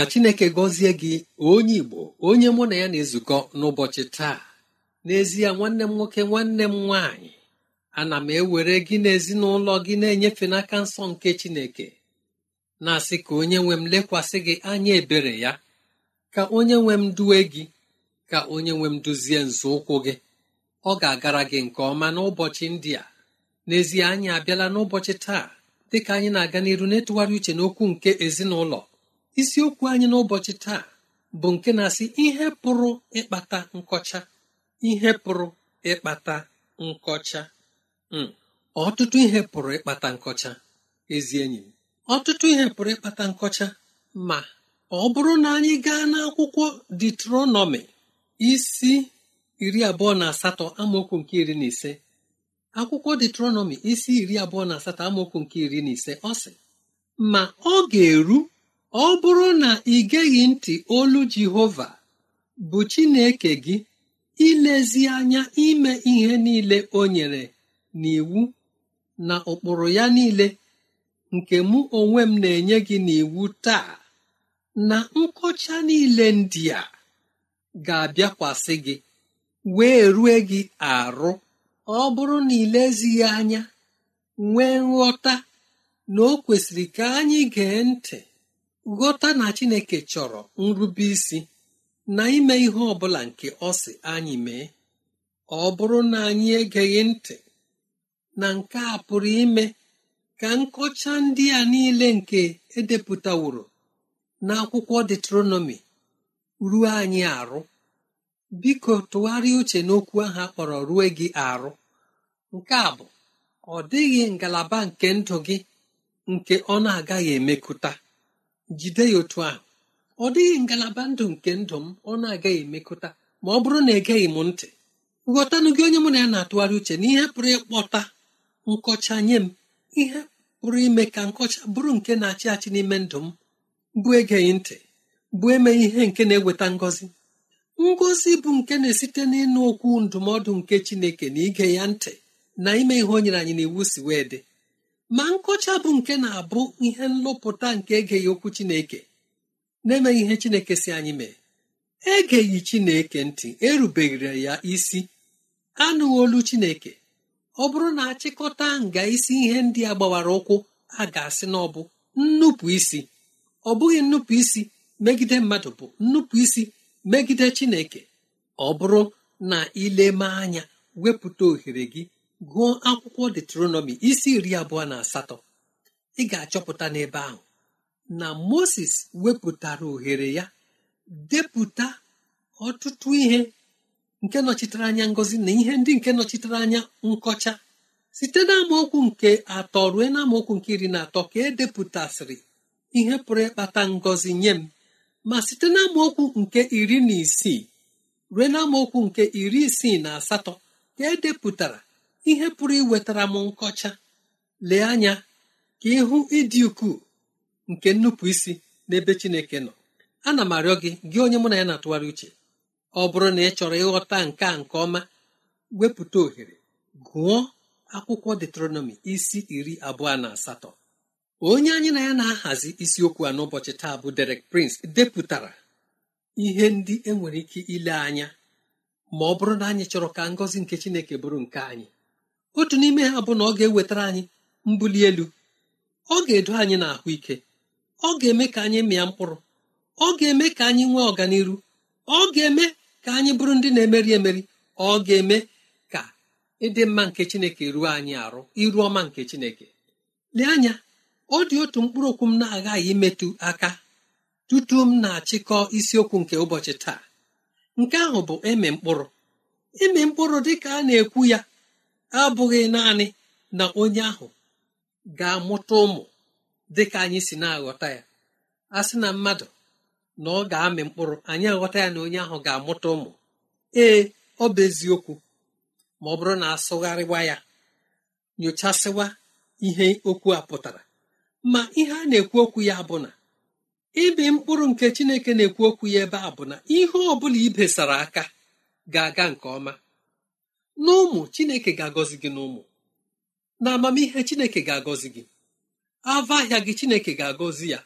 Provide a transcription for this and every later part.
ka chineke gọzie gị onye igbo onye mụ na ya na-ezukọ n'ụbọchị taa n'ezie nwanne m nwoke nwanne m nwaanyị ana m ewere gị n'ezinụlọ gị na-enyefe n'aka nsọ nke chineke na-asị ka onye nwe m lekwasị gị anya ebere ya ka onye nwe m duwe gị ka onye nwe m duzie nzọụkwụ gị ọ ga-agara gị nke ọma n'ụbọchị ndị a n'ezie anyị abịala n'ụbọchị taa dịka anyị na-aga n'iru na-etụgharị uche n'okwu nke ezinụlọ isiokwu anyị n'ụbọchị taa bụ nke na-asị ihe pụrụ ịkpata nkọcha ihe pụrụ ịkpata nkọcha hmm. ọtụtụ ihe pụrụ ịkpata nkọcha ezi enyi m ọtụtụ ihe pụrụ ịkpata nkọcha ma ọ bụrụ na anyị gaa n'akwụkwọ detronọmi isi iri abụọ na asatọ amaokwu nke iri na ise akwụkwọ detronọmi isi iri abụọ na asatọ amaokwu nke iri na ise ọ sị ma ọ ga-eru ọ bụrụ na ị geghị ntị olu Jehova bụ Chineke gị ilezi anya ime ihe niile o nyere n'iwu na ụkpụrụ ya niile nke mụ onwe m na-enye gị n'iwu taa na nkọcha niile ndị a ga-abịakwasị gị wee rue gị arụ ọ bụrụ na ilezighị anya nwee nghọta na o kwesịrị ka anyị gee ntị ghọta na chineke chọrọ nrube isi na ime ihe ọ bụla nke ọ sị anyị mee ọ bụrụ na anyị egeghị ntị na nke a pụrụ ime ka nkọcha ndị a niile nke edepụtaworo n'akwụkwọ detronọmi ruo anyị arụ biko tụgharịa uche n'okwu ahụ akpọrọ rue gị arụ nke a bụ ọ dịghị ngalaba nke ndụ gị nke ọ na-agaghị emekụta jide ya otu ahụ ọ dịghị ngalaba ndụ nke ndụ m ọ na-agaghị emekọta ma ọ bụrụ na egeghị m ntị ghọtanụ gị onye mụ na ya na-atụgharị uche na ihe pụrụ ịkpọta nkọcha nye m ihe pụrụ ime ka nkọcha bụrụ nke na-achị achị n'ime ndụ m bụ egeghị ntị bụ eme ihe nke na-eweta ngọzi ngọzi bụ nke na-esite n'ịnụ okwu ndụmọdụ nke Chineke na ige ya ntị na ime ihe o nyere anyị iwu si wee dị ma nkọcha bụ nke na-abụ ihe nlụpụta nke egeghị okwu chineke na-emeghị ihe chineke si anyị mee egeghị chineke ntị erubeghịra ya isi anụghị olu chineke ọ bụrụ na achịkọta nga isi ihe ndị a gbawara ụkwụ a ga-asị na ọ bụ nnupụ isi ọ bụghị nnupụ isi megide mmadụ bụ nnupụ isi megide chineke ọ bụrụ na ileme anya wepụta ohere gị gụọ akwụkwọ detronomi isi iri abụọ na asatọ ị ga-achọpụta n'ebe ahụ na moses wepụtara ohere ya depụta ọtụtụ ihe nke nọchitere anya ngozi na ihe ndị nke nọchitere anya nkọcha site na nke atọ ruo na nke iri na atọ ka edepụtasịrị ihe pụrụ ịkpata ngọzi nye m ma site na nke iri na isii ruo na nke iri isii na asatọ ka edepụtara ihe pụrụ iwetara m nkọcha lee anya ka ịhụ ịdị ukwuu nke nnupụ isi n'ebe Chineke nọ ana m arịọ gị gị onye mụ na ya na-atụgharị uche ọ bụrụ na ị chọrọ ịghọta nke a nke ọma wepụta ohere gụọ akwụkwọ detronomi isi iri abụọ na asatọ onye anyị na ya na-ahazi isiokwu a n'ụbọchị taa bụ Derek Prince depụtara ihe ndị enwere ike ile anya ma ọ bụrụ na anyị chọrọ ka ngọzi nke Chineke bụrụ nke anyị otu n'ime ha bụ na ọ ga-ewetara anyị mbuli elu ọ ga-edo anyị na ahụ ike ọ ga-eme ka anyị mịa mkpụrụ ọ ga-eme ka anyị nwee ọganihu ọ ga-eme ka anyị bụrụ ndị na-emeri emeri ọ ga-eme ka ịdị mma nke chineke ruo anyị arụ iru ọma nke chineke lee anya ọ dị otu mkpụrụ okwu m na-aghaghị imetụ aka tutu m na-achịkọ isiokwu nke ụbọchị taa nke ahụ bụ ịmị mkpụrụ ịmị mkpụrụ dị ka a na-ekwu ya abụghị naanị na onye ahụ ga-amụta ụmụ dị ka anyị si na-aghọta ya a sị na mmadụ na ọ ga-amị mkpụrụ anyị aghọta ya na onye ahụ ga-amụta ụmụ ee ọ bụ eziokwu ma ọ bụrụ na asụgharịwa ya nyochasịwa ihe okwu a pụtara ma ihe a na-ekwu okwu ya bụ na ibi mkpụrụ nke Chineke na-ekwu okwu ya ebe a bụ na ihe ọ bụla ibesara aka ga-aga nke ọma n'ụmụ chineke ga-agọzi gị n'ụmụ na amamihe chineke ga-agọzi gị ava ahịa gị chineke ga-agọzi ya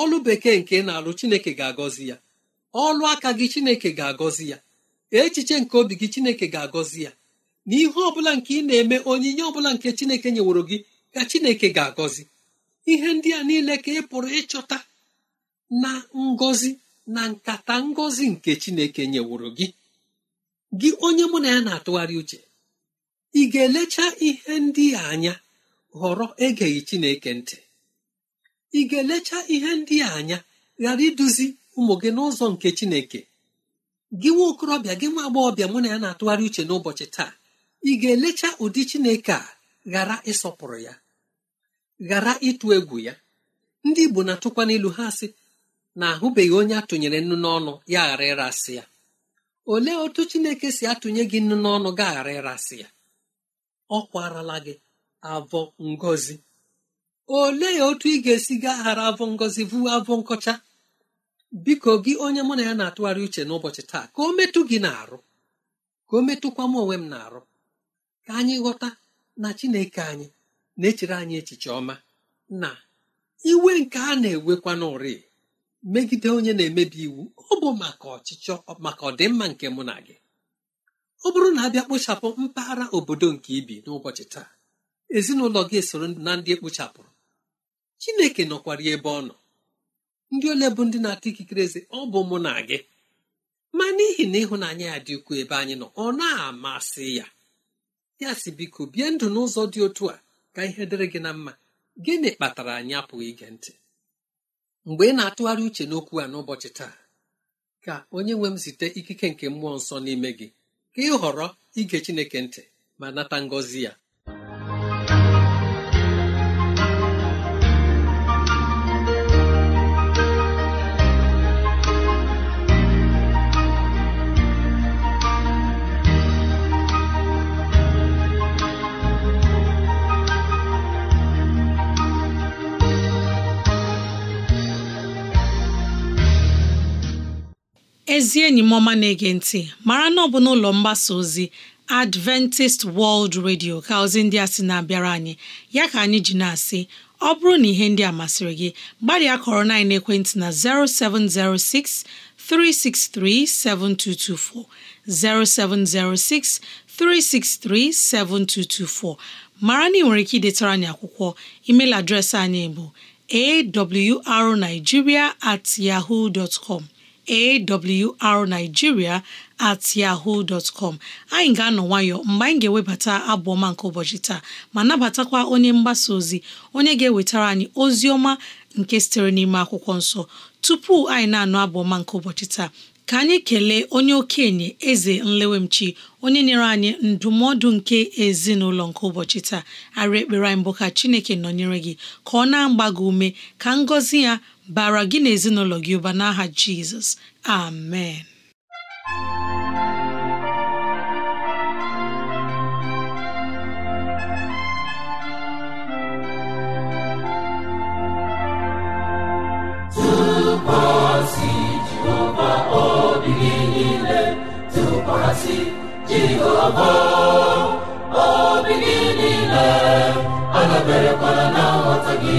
ọlụ bekee nke na-alụ chineke ga-agọzi ya ọlụ aka gị chineke ga-agọzi ya echiche nke obi gị chineke ga-agọzi ya na ihe ọbụla nke ị na-eme onyinye ọbụla nke chineke nyeworo gị ka chineke ga-agọzi ihe ndị a niile ka ị pụrụ ịchọta na ngọzi na nkata ngọzi nke chineke nyeworo gị gị onye mụ na ya na-atụgharị uche ị ga-elecha ihe ndị a anya ghọrọ egeghị Chineke ntị ị ga-elecha ihe ndị a anya ghara iduzi ụmụ gị n'ụzọ nke Chineke gị nwa okorobịa gị nwa agbọghọbịa mụ na ya na-atụgharị uche n'ụbọchị taa ị ga-elecha ụdị Chineke a ghara ịsọpụrụ ya ghara ịtụ egwu ya ndị Igbo na-atụkwa n'ilu ha sị na ahụbeghị onye atụnyere nnu n'ọnụ ya ghara ịrasị ya olee otu chineke si atụnye gị nnu n'ọnụ gaghara ịrasị ya ọ kwarala gị avọ ngozi olee otu ị ga-esi gaghara avọ ngozi bụ avọ nkọcha biko gị onye mụ na ya na-atụgharị uche n'ụbọchị taa ka o metụ gị na-arụ ka o metụkwa m onwe m na-arụ ka anyị ghọta na chineke anyị na-echere anyị echiche ọma na iwe nke a na-ewekwa n'ụri megide onye na-emebi iwu ọ bụ maka ọchịchọ maka ọdịmma nke mụ na gị ọ bụrụ na abịa kpochapụ mpaghara obodo nke ibi n'ụbọchị taa ezinụlọ gị esoro na ndị ekpochapụrụ chineke nọkwara ebe ọ nọ ndị ole bụ ndị na atụ ikikere eze ọ bụ mụ na gị ma n'ihi na ịhụnanya ya dị ukwuu ebe anyị nọ ọ na-amasị ya ya si biko bie ndụ n'ụzọ dị otu a ka ihe dịrị gị na mma gịnị kpatara anyị apụghị ige ntị mgbe ị na-atụgharị uche n'okwu a n'ụbọchị taa ka onye nwe m site ikike nke mmụọ nsọ n'ime gị ka ị họrọ ige Chineke ntị ma nata ngọzi ya ezi enyi m ọma na-ege ntị mara na ọ bụ n'ụlọ mgbasa ozi Adventist World Radio ka ozi ndị a sị na-abịara anyị ya ka anyị ji na-asị ọ bụrụ na ihe ndị a masịrị gị gbalịa kọrọ na ekwentị na 0706 363 7224 0706 363 7224 mara na ị nwere ike idetara anyị akwụkwọ email adreesị anyị bụ awrnigeria at yahoo dot com awrnigeria at yahoo dot com anyị ga-anọ nwayọ mgbe anyị ga-ewebata abụ ọma nke ụbọchị taa ma nabatakwa onye mgbasa ozi onye ga-ewetara anyị ozi ọma nke sitere n'ime akwụkwọ nsọ tupu anyị na-anụ abụ ọma nke ụbọchị taa ka anyị kelee onye okenye eze nlewemchi onye nyere anyị ndụmọdụ nke ezinụlọ nke ụbọchị taa arị ekpere anyị mbụ ka chineke nọnyere gị ka ọ na-agba gị ume ka ngọzi ya bara gị na ezinụlọ gị ụba n'aha jizọs amen tụkwasị Jehova obi gị niile tụkwasị Jehova obi gị niile adaberekwala na nghọta gị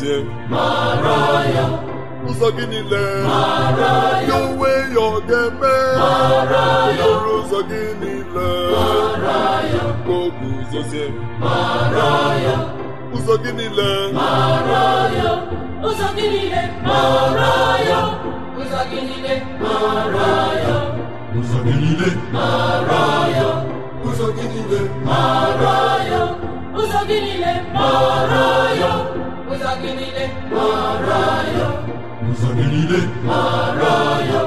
gọzie ụzọ gị niile ya onwe ya ọ ga-eme lụrụ ụzọ gị niile ka o guzozie ụzọ gị ụzọ gị ụzọ gị niile ụzọ gị niile ụzọ gị niile niile mara ya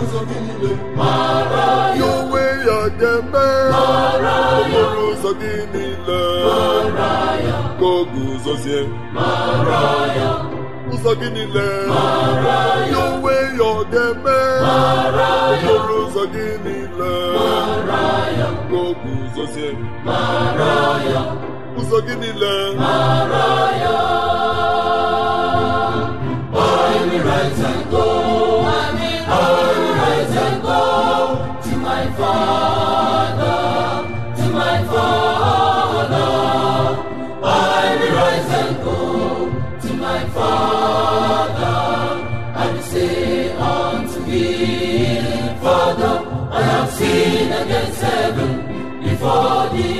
ụzọ gị niile mara ya onwe ya ga-eme mara ya okporo ụzọ gị niile mara ya ka o guzozie mara ya ụzọ gị niile mara ya onwe ya ọ ga-eme mara ya okporo ụzọ gị niile mara ya ka o guzozie mara ya ụzọ gị niile mara ya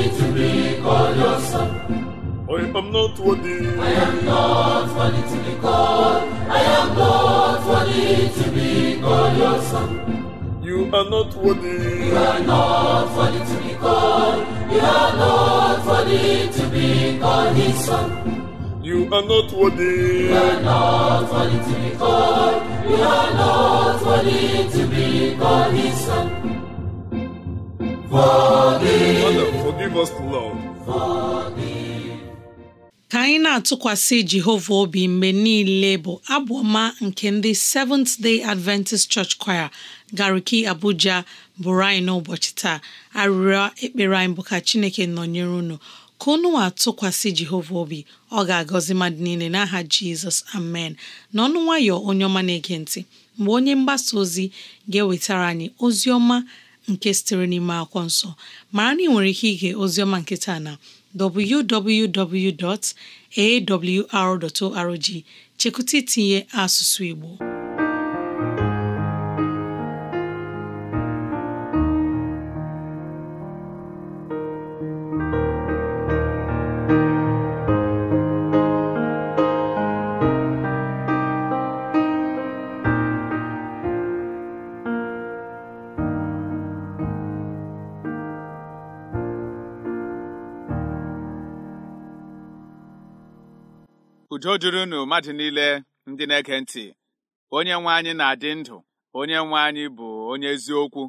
me to be called your I am not worthy. to be called. your You are not worthy. You are not worthy to be called. You are not worthy to be called his son. You are not worthy. You are not worthy to be called. You are not worthy to be called his son. ka anyị na-atụkwasị Jehova obi mgbe niile bụ abụ ọma nke ndị Seventh Day Adventist Church Choir Gariki Abuja bụrụ anyị n'ụbọchị taa arịrịọ ekpere anyị bụ ka Chineke nọnyere unu ka unu atụkwasị Jehova obi ọ ga-agọzi mmadụ niile n'aha Jizọs amen n'ọnụ nwayọ onye ọma na-ege ntị mgbe onye mgbasa ozi ga-ewetara anyị ozi ọma nke sitere n'ime akwụkwọ nsọ mara na ị nwere ike ige oziọma nke taa na www.awr.org chekwụta itinye asụsụ Igbo udo dịrị unu mmadụ niile ndị na-ege ntị onye nwe anyị na-adị ndụ onye nwe anyị bụ onye eziokwu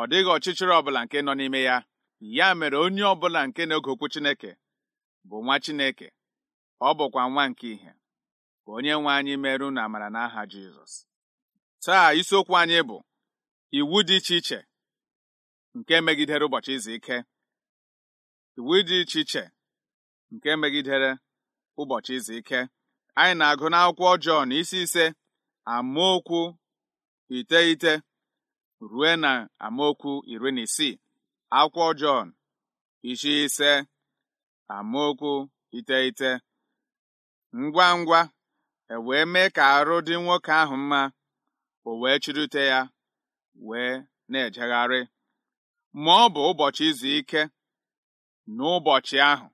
ọ dịghị ọchịchịrị ọbụla nke nọ n'ime ya ya mere onye ọbụla nke na oge okwu Chineke bụ nwa Chineke ọ bụkwa nwa nke ihe onye nwe anyị merụ na amara n'aha Jizọs taa isiokwu anyị bụ iwu dị iche iche nke megidere ụbọchị izu ike iwu dị iche iche nke megidere ụbọchị izu ike anyị na-agụ n'akwụkwọ Jọn isi ise amaokwu iteghete rue na amaokwu iri na isii akwụkwọ Jọn isi ise amaokwu iteghete ngwa ngwa e wee mee ka arụ dị nwoke ahụ mma o wee chirute ya wee na-ejegharị ma ọ bụ ụbọchị izu ike n'ụbọchị ahụ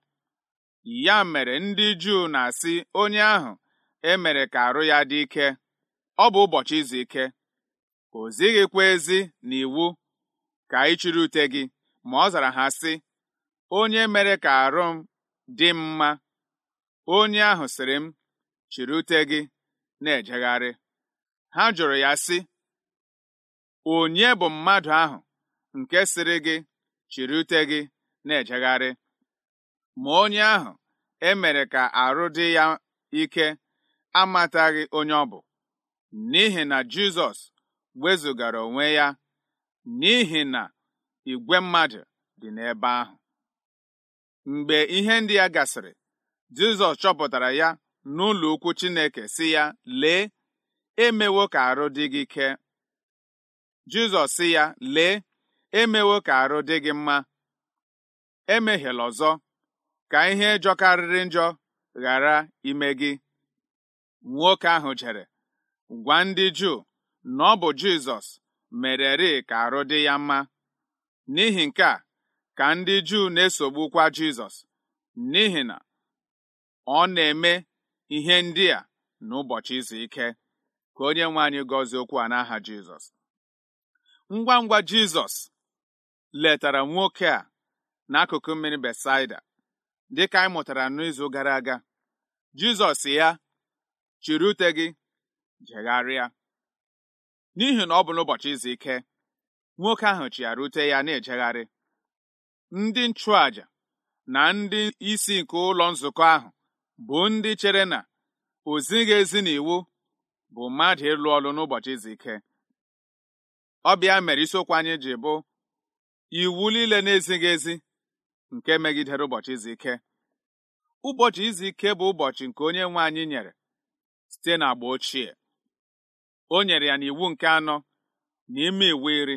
ya mere ndị Juu na-asị onye ahụ e mere ka arụ ya dị ike ọ bụ ụbọchị izu ike o zighịkwa ezi na iwu ka ị chiri ute gị ma ọ zara ha sị onye mere ka arụ m dị mma onye ahụ siri m chịrị ute gị na-ejegharị ha jụrụ ya sị onye bụ mmadụ ahụ nke sịrị gị chịrị ute gị na-ejegharị ma onye ahụ e mere ka arụ dị ya ike amataghị onye ọ bụ n'ihi na Jizọs wezụgara onwe ya n'ihi na igwe mmadụ dị n'ebe ahụ mgbe ihe ndị ya gasịrị Jizọs chọpụtara ya n'ụlọ ukwu Chineke si ya lee emewo ka arụ dị gị ike Jizọs si ya lee emewo ka arụ dị gị mma emehiela ọzọ ka ihe jọkarịrị njọ ghara ime gị nwoke ahụ jere gwa ndị Juu na ọ bụ Jizọs mereri ka arụ dị ya mma n'ihi nke a ka ndị Juu na-esogbukwa Jizọs n'ihi na ọ na-eme ihe ndị a n'ụbọchị izu ike ka onye nwe anyị gọzie okwu a n'aha Jizọs ngwa ngwa Jizọs letara nwoke a n'akụkụ mmiri Besaida dịka anyị mụtara n'izu gara aga Jizọs ya chiri ute gị jegharịa n'ihi na ọ bụ n'ụbọchị izu ike nwoke ahụ chịara ute ya na-ejegharị ndị nchụàjà na ndị isi nke ụlọ nzukọ ahụ bụ ndị chere na ozi na ezi n'iwu bụ mmadụ ịlụ ọlụ n'ụbọchị izu ike Ọbịa mere isiokwu anyị ji bụ iwu niile na-ezighị ezi nke megidere ụbọchị izu ike ụbọchị izu ike bụ ụbọchị nke onye nwe anyị nyere site n'agba ochie o nyere ya n'iwu nke anọ na ime iwu iri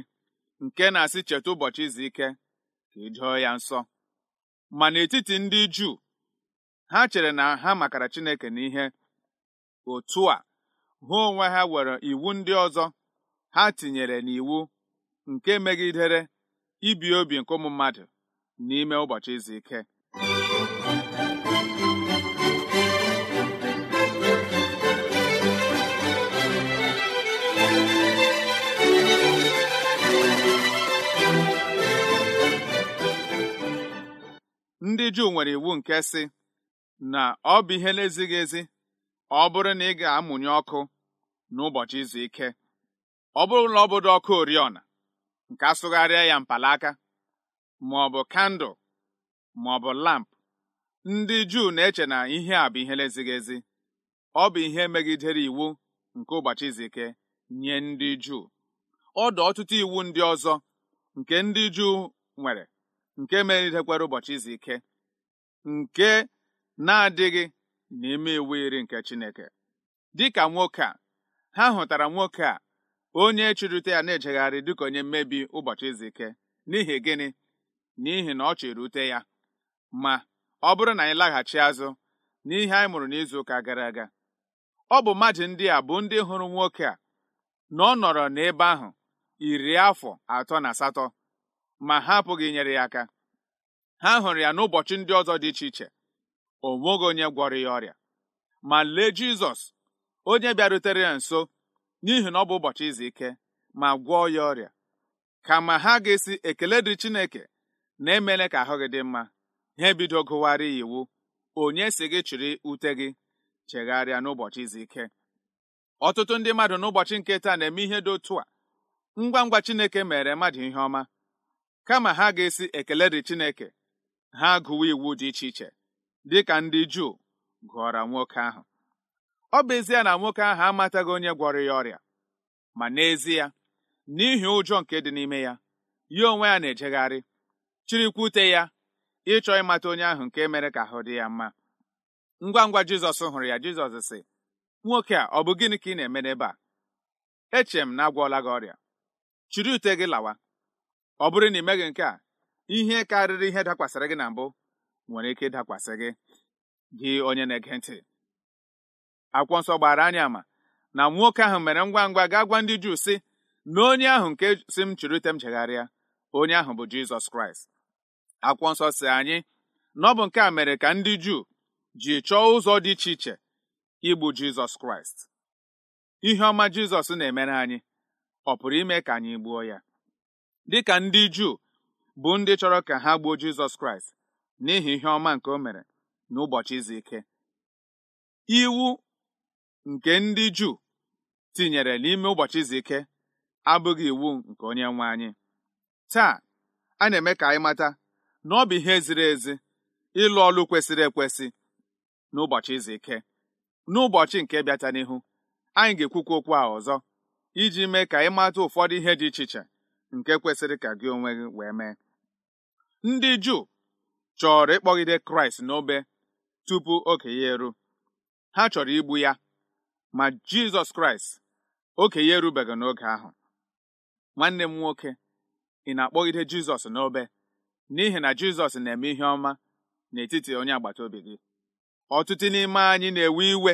nke na-asị cheta ụbọchị izu ike ka ị e ya nsọ ma n'etiti ndị Juu ha chere na ha makara Chineke n'ihe otu a ha onwe ha were iwu ndị ọzọ ha tinyere n'iwu nke megidere ibi obi nke ụmụ mmadụ n'ime ụbọchị izu ike ndị Juu nwere iwu nke sị na ọ bụ ihe na-ezighị ezi ọ bụrụ na ị ga-amụnye ọkụ n'ụbọchị izu ike ọ bụrụ na ọ bụdo ọkụ oriọna nke asụgharịa ya mpalaka ma ọ bụ kandụl ma ọ bụ lamp ndị Juu na-eche na ihe a bụ ihe na-ezighị ezi ọ bụ ihe megidere iwu nke ụbọchị izu ike nye ndị Juu ọ ọtụtụ iwu ndị ọzọ nke ndị Juu nwere nke meridekwara ụbọchị izu ike nke na-adịghị n'ime iwu iri nke Chineke dịka nwoke a ha hụtara nwoke a onye chụrụte ya na-ejegharị dịka onye mmebi ụbọchị izu ike n'ihi gịnị n'ihi na ọ chịrị ute ya ma ọ bụrụ na anyị laghachi azụ n'ihe anyị mụrụ n'izu ụka gara aga ọ bụ mmadụ ndị a bụ ndị hụrụ nwoke a na ọ nọrọ n'ebe ahụ iri afọ atọ na asatọ ma ha apụghị inyere ya aka ha hụrụ ya n'ụbọchị ndị ọzọ dị iche iche o nweghị onye gwọrọ ya ọrịa ma lee Jizọs onye bịarutere ya nso n'ihi na ọ bụ ụbọchị izu ike ma gwọọ ya ọrịa kama ha ga-esi ekele dị Chineke na emela ka ahụ gị dị mma ha ebido gụwarị iwu onye si gị chịrị ute gị chegharịa n'ụbọchị izu ike ọtụtụ ndị mmadụ n'ụbọchị nke taa na-eme ihe dị otu a ngwa ngwa Chineke mere mmadụ ihe ọma kama ha ga-esi ekele dị Chineke ha gụwa iwu dị iche iche dị ka ndị Juu gụọra nwoke ahụ ọ bụ ezie na nwoke ahụ amataghị onye gwọrọ ya ọrịa ma n'ezie n'ihi ụjọ nke dị n'ime ya ya onwe ya na-ejegharị chirikwute ya ịchọ ịmata onye ahụ nke mere ka ahụ dị ya mma ngwa ngwa jizọs hụrụ ya jizọs sị nwoke a ọ bụ gịnị ka ị na-eme n'ebe a eche m na agwọla gị ọrịa chiri ute gị lawa ọ bụrụ na ị meghị nke a ihe karịrị ihe dakwasịrị gị na mbụ nwere ike ịdakwasị gị gị onye na-ege ntị akwụkwọ nsọ gbara anya ama na nwoke ahụ mere ngwa ngwa gaa gwa ndị Juu sị na onye ahụ nke si m chiri ute m jegharịa onye ahụ bụ Jizọs Kraịst akwụkwọ nsọ si anyị na ọ bụ nke a mere ka ndị Juu ji chọọ ụzọ dị iche iche igbu Jizọs Kraịst ihe ọma Jizọs na-emere anyị ọ pụrụ ime ka anyị gbuo ya Dị ka ndị Juu bụ ndị chọrọ ka ha gbuo Jizọs Kraịst n'ihi ihe ọma nke o mere n'ụbọchị izu ike iwu nke ndị Juu tinyere n'ime ụbọchị izu ike abụghị iwu nke onye nwe anyị taa a na-eme ka anyị mata na ọ bụ ihe ziri ezi ịlụ ọlụ kwesịrị ekwesị n'ụbọchị izu ike n'ụbọchị nke bịata n'ihu anyị ga-ekwukwa okwu a ọzọ iji mee ka ịmata ụfọdụ ihe dị iche iche nke kwesịrị ka gị onwe gị wee mee ndị Juu chọrọ ịkpọgide Kraịst n'obe tupu oke ya eru ha chọrọ igbu ya ma Jizọs Kraịst oke ya erubeghị n'oge ahụ nwanne m nwoke ị na-akpọgide Jizọs n'obe n'ihi na Jizọs na-eme ihe ọma n'etiti onye agbata obi gị ọtụtụ n'ime anyị na-ewe iwe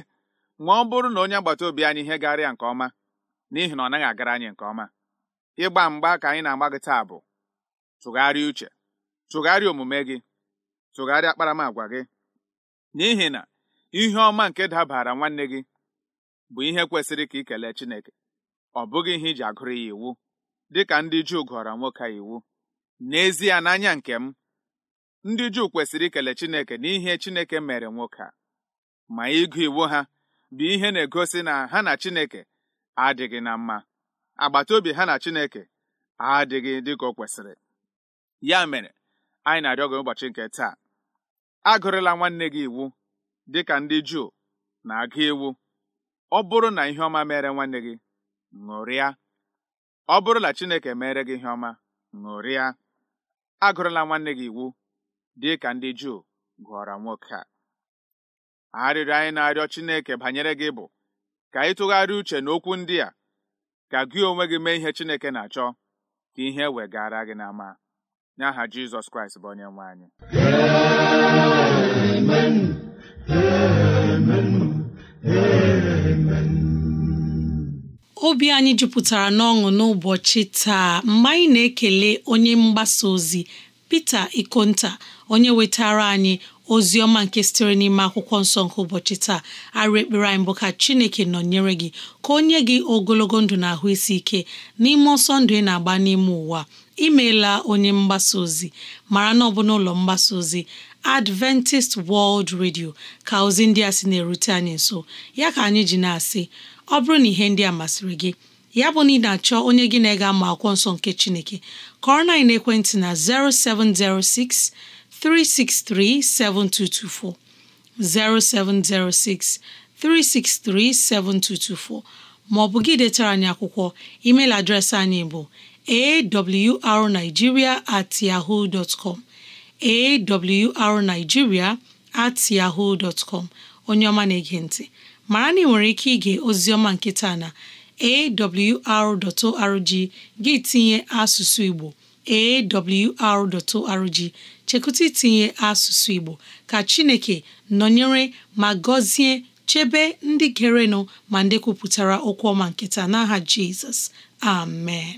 ma ọ bụrụ na onye agbata obi anyị ihe garịa nke ọma n'ihi na ọ naghị agara anyị nke ọma ịgba mgba ka anyị na-agba gị taa bụ tụgharịa uche tụgharịa omume gị tụgharịa akparamagwa gị n'ihi na ihe ọma nke dabara nwanne gị bụ ihe kwesịrị ka ị kelee Chineke ọ bụghị ihe iji agụrụ ya iwu dịka ndị Juu gụọrọ nwoke a iwu n'ezie n'anya nke m ndị Juu kwesịrị ikele Chineke n'ihe Chineke mere nwoke a ma ịgụ iwu ha bụ ihe na-egosi na ha na Chineke adịghị na mma agbata ha na Chineke adịghị dịka o kwesịrị ya mere anyị na-arịọ gị ụbọchị nke taa agụrịla nwanne gị iwu dịka ndị Juu na-agụ iwu ọ bụrụ na ihe ọma mere nwanne gị ṅụrịa ọ bụrụ na Chineke mere gị ihe ọma ṅụrịa agụrụla nwanne gị iwu dị ka ndị Juu gụọrọ nwoke a arịrịọ anyị na-arịọ Chineke banyere gị bụ ka ị tụgharịa uche n'okwu ndị a ka gị onwe gị mee ihe Chineke na-achọ ka ihe wegara gị n'ama n'aha Jizọs Kraịst bụ onye nwe anyị Amen. Amen. Amen. obi anyị jupụtara n'ọṅụ n'ụbọchị taa mgbe anyị na-ekele onye mgbasa ozi Pita Ikonta onye wetara anyị ozi ọma nke sitere n'ime akwụkwọ nsọ nke ụbọchị taa arụ ekpere anyị bụ ka Chineke nọnyere gị ka o nye gị ogologo ndụ na ahụ isi ike n'ime ọsọ ndụ ị na-agba n'ime ụwa imeela onye mgbasa ozi mara na ọ ụlọ n'ụlọ mgbasa ozi Adventist World Radio ka ozi ndị a sị na-erute anyị nso ya ka anyị ji na-asị ọ bụrụ na ihe ndị a masịrị gị ya bụ na ị na-achọ onye gị na-ega ma akwụkwọ nsọ nke Chineke kọrọ na ekwentị na 0706 363 7224 0706 363 7224 ma ọ bụ gị detara anyị akwụkwọ email adreesị anyị bụ awrnigeria at yahoo dot com awrnigeria at yahoo com onye ọma na-ege ntị mara na ị nwere ike ige oziọma nkịta na awr.org gị tinye asụsụ Igbo awr.org chekụta itinye asụsụ Igbo ka Chineke nọnyere ma gọzie chebe ndị gerenụ ma ndị kwupụtara okwu ọma nkịta n'aha Jizọs amen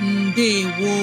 ndewo